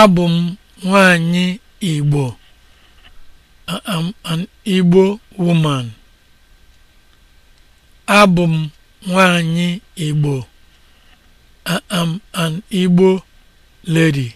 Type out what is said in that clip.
Abụ m nwanyị Igbo. I'm an Igbo woman. Abụ m nwanyị Igbo. I'm an Igbo lady.